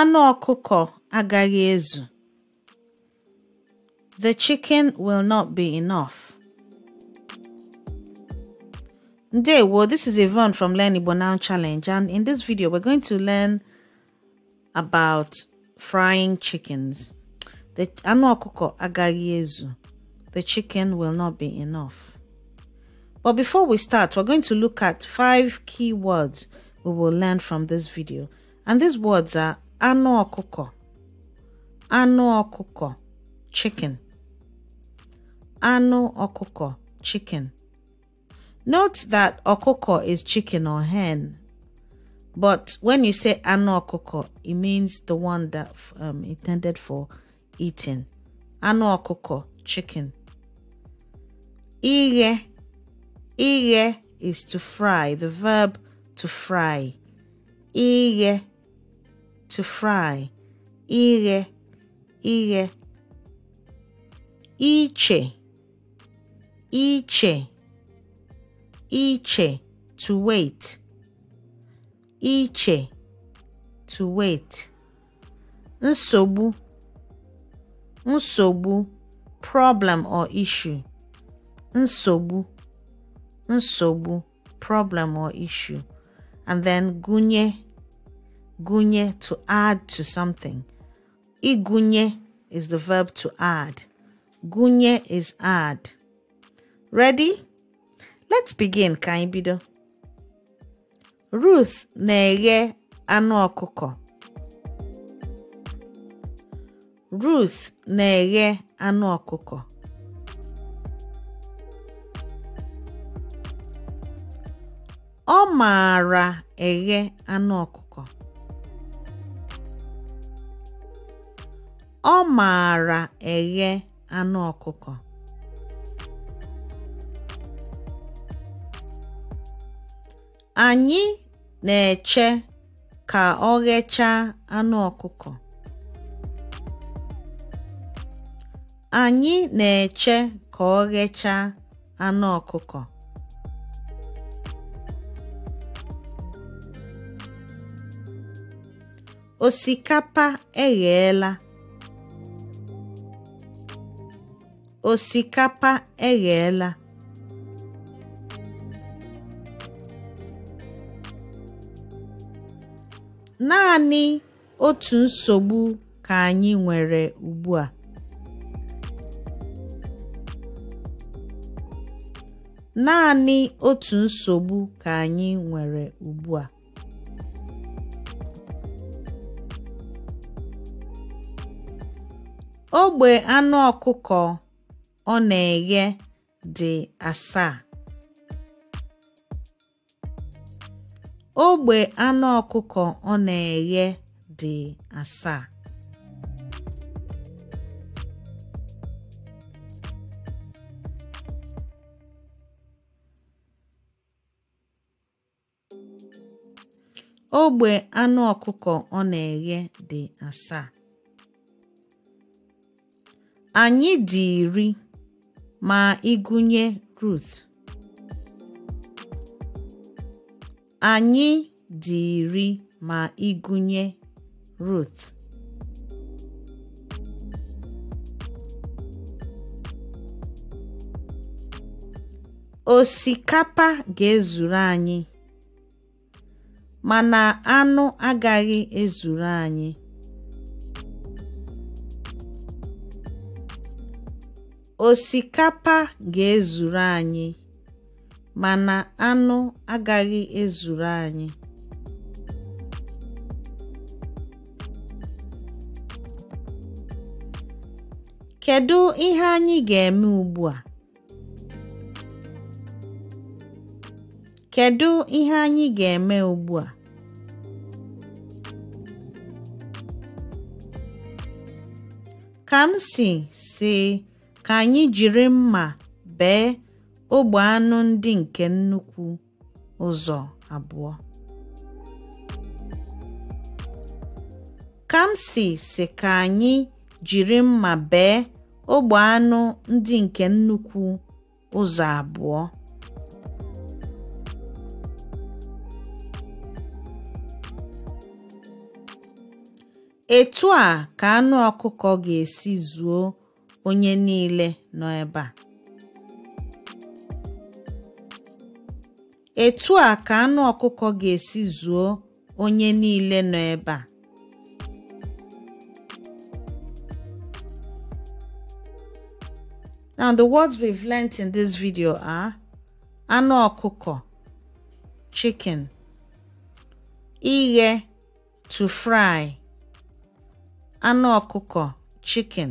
Anụ ọkụkọ agaghị ezu. The chicken will not be enough. well, this is Yvonne from Learn Igbo Now Challenge and in this video we're going to learn about frying chickens. The anụ ọkụkọ agaghị ezu. The chicken will not be enough. But before we start, we're going to look at five key words we will learn from this video. And these words are anụ ọkụkọ anụ ọkụkọ chicken anụ ọkụkọ chicken note that ọkụkọ is chicken or hen but when you say anụ ọkụkọ it means the one that um, intended for eating anụ ọkụkọ chicken ighe ighe is to fry the verb to fry ighe to fry, ighe, ighe. Iche, iche, iche, to wait. Iche, to wait. Nsogbu, nsogbu, problem or issue. Nsogbu, nsogbu, problem or issue. And then gunye, gunye, to add to something. Igunye is the verb to add. Gunye is add. Ready? Let's begin, ka bido. Ruth neye eghe anụ Ruth neye eghe anụ ọkụkọ. Ọ maara anụ Ọ maara eghe anụ ọkụkọ. Anyị na-eche ka ọ ghechaa anụ ọkụkọ. Anyị na-eche ka ọ ghechaa anụ ọkụkọ. Osikapa egheela. Osikapa eghela. Naanị otu Naanị otu nsogbu ka anyị nwere ugbu a. Ogbe anụ ọkụkọ ọ na-eghe dị asaa. Ogbe anụ ọkụkọ ọ na-eghe dị asaa. Ogbe anụ ọkụkọ ọ na-eghe dị asaa. Anyị dị iri. ma ịgụnye Ruth. Anyị dị iri ma gụnye Ruth. Osikapa ga-ezuru anyị, mana anụ agaghị ezuru anyị. Osikapa ga-ezuru anyị, mana anụ agaghị ezuru anyị. Kedu ihe anyị ga-eme ugbu a? Kedu ihe anyị ga-eme ugbu a? Kamsi sị ka anyị jiri mma bee ogbe anụ ndị nke nnukwu ụzọ abụọ. Kamsi si ka anyị jiri mma bee ogbe anụ ndị nke nnukwu ụzọ abụọ. Etu a ka anụ ọkụkọ ga-esi zuo onye niile nọ ebe a etu a ka anụ ọkụkọ ga-esi zuo onye niile nọ ebe a Now, the words we've learnt in this video are anụ ọkụkọ, chicken, ighe, to fry, anụ ọkụkọ, chicken.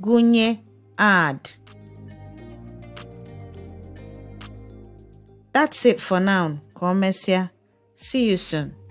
gụnye ad. That's it for now. Ka o mesịa. See you soon.